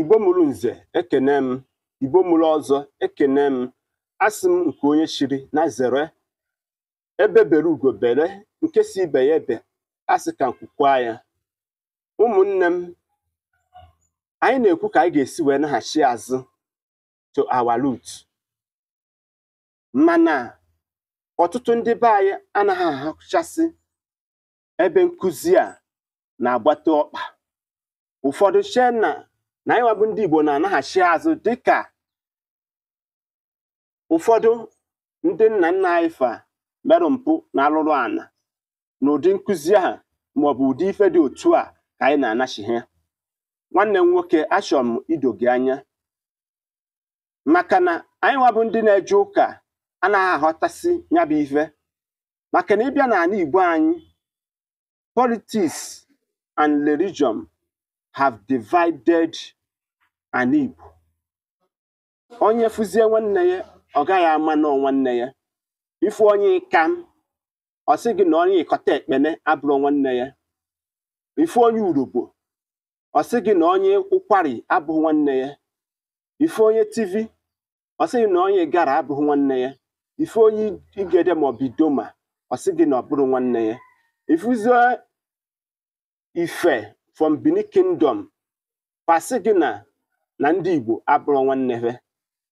igbo mụrụ nze ekene m igbo mụrụ ọzọ ekene m asị m nke onye chiri na zere ebe bere ugo bere nke si ibe ya ebe asị ka nkwukwa ya ụmụnne m anyị na-ekwu ka anyị ga-esi wee naghachi azụ to awalut mana ọtụtụ ndị be anyị anaghị ahụchasị ebe nkụzi a na-agbata ọkpa ụfọdụ chee na anyị bụ ndị Igbo na-anaghachi azụ dịka ụfọdụ ndị nna nna anyị fa merụ mpụ na alụrụ ana n'ụdị nkụzi ha maọbụ ụdị ife dị otu a ka anyị na-anachi ha nwanne m nwoke achọrọ m ido gị anya maka na anyị nwabụ ndị na-eje ụka anaghị aghọtasị ya bụ ife maka na ịbịa n'ala Igbo anyị politics and religion have divided ana Igbo onye fụzie nwanne ya ọ gaghị ama nọ nwanne ya ifu onye ịka ọ sị gị na onye ịkọta ekpene abụrụ nwanne ya ifu onye urugbo ọ sị gị na onye ụkwari abụghị nwanne ya Ife onye TV, ọ sị gị na onye gara abụghị nwanne ya Ife onye igede ma ọ idoma ọ sị gị na ọ bụrụ nwanne ya ifuzie ife from Benin Kingdom ọ sị gị na na ndị Igbo abụrụ nwanne ha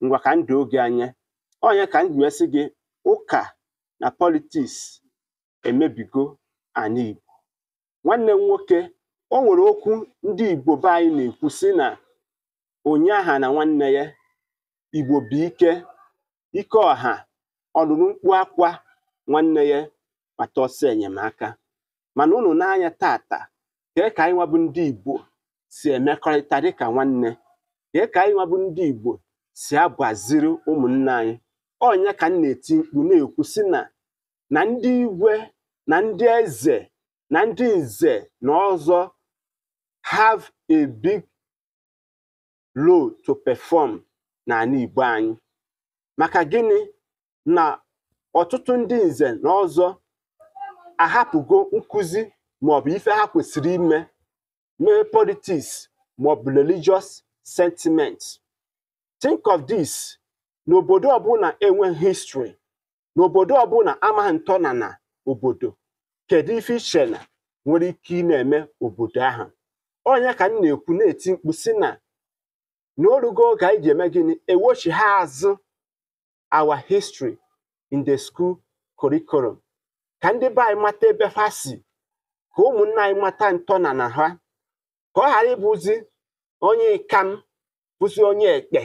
ngwa ka ndụ oge anya onye ka m si gị ụka na politiks emebigo anyị Igbo nwanne m nwoke o nwere okwu ndị Igbo be anyị na-ekwu sị na onye aha na nwanne ya Igbo bụ ike ike ọha ọlụlụ mkpu akwa nwanne ya kpata ọsọ enyemaka mana unu n'anya tata kee ka anyị nwabụ ndị Igbo si emekọrịta dịka nwanne kee ka anyị nwabụ ndị Igbo si agbaziri ụmụnne anyị onye ka m na-eti mkpu na-ekwu si na na ndị igwe na ndị eze na ndị nze na ọzọ have a big role to perform n'ala Igbo anyị maka gịnị na ọtụtụ ndị nze na ọzọ ahapụgo nkụzi maọbụ ife ha kwesịrị ime mee politiks maọbụ religious sentiment think of this n'obodo ọbụla enwe history n'obodo ọbụla amaghị na obodo kedu ife iche nwere ike ị na-eme obodo ahụ onye ka m na-ekwu na-eti mkpu si na n'orugo orugo oge anyị eme gịnị ewochi ha azụ our history in the school curriculum ka ndị be anyị mata ebe ha si ka ụmụnna anyị mata ntọnana ha ka ọ ghara ịbụzi onye ịkam pụzi onye ekpe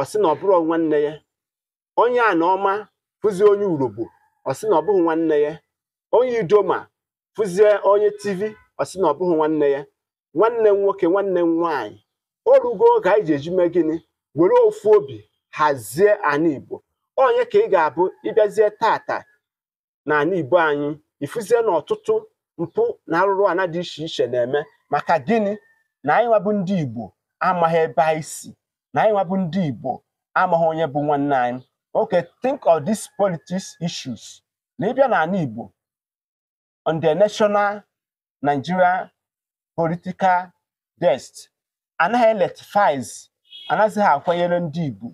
ọ sị na ọ bụrụ nwanne ya onye anaọma pụzi onye urogbo ọ sị na ọ bụghị nwanne ya onye idoma fụzie onye tivi ọ sị na ọ bụghị nwanne ya nwanne m nwoke nwanne m nwaanyị o rugo oge anyị ji eji mee gịnị were ofu obi hazie ana igbo onye ka ị ga-abụ ịbịazie tata na ana igbo anyị ịfụzie na ọtụtụ mpụ na arụrụ ana dị iche iche na-eme maka gịnị na anyị bụ ndị Igbo amaghị ebe anyị si na anyị bụ ndị Igbo amaghị onye bụ nwanne anyị okay think of these politics issues na ịbịa Igbo on the national Nigeria political desk anaghị eletifiz anaghịzị akwanyere ndị Igbo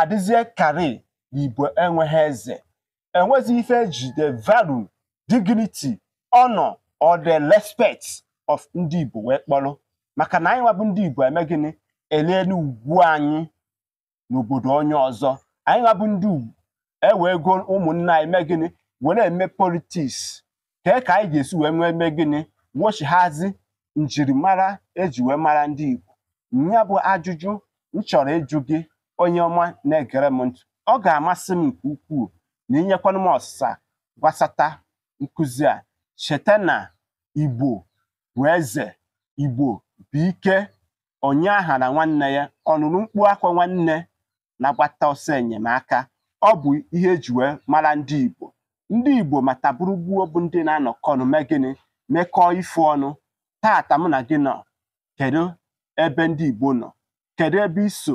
adịzie kari na Igbo enweghị eze enweghị ife ejide value dignity honor or the respect of ndị Igbo wee kpọrọ maka na anyị nwabụ ndị Igbo eme gịnị elee n'ugwu anyị n'obodo onye ọzọ anyị nwabụ ndị Igbo ewee go ụmụnna anyị mee gịnị were eme politiks kee ka anyị ga-esi wee nwee mee gịnị wochighazi njirimara eji wee mara ndị Igbo ya bụ ajụjụ m chọrọ ịjụ gị onye ọma na-egere m ọ ga-amasị m nke ukwuu na inyekwana m ọsịsa gbasata nkụzi a cheta na Igbo bụ eze igbo bụ ike onye agha na nwanne ya ọnụnụ mkpu akwa nwanne na-agbata ọsọ enyemaka ọ bụ ihe eji wee mara ndị igbo ndị igbo mata gburugburu bụ ndị na-anọkọ ọnụ mee gịnị mekọọ ife ọnụ tata mụ na gị nọ kedu ebe ndị igbo nọ kedu ebe iso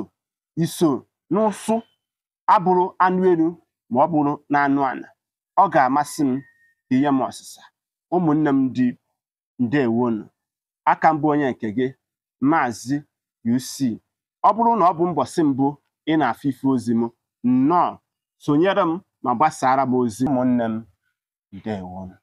iso n'ụsụ abụrụ anụ elu ma ọ bụrụ na anụ ala ọ ga-amasị m ihe m ọsịsa ụmụnne m ndị igbo ǹdewonù aka mbụ onye nke gị maazị UC ọ bụrụ na ọ bụ mbọsị mbụ ị na àfụ ife ozi m nnọọ sonyere m ma gbasara m ozi ụmụnne m ǹdewonù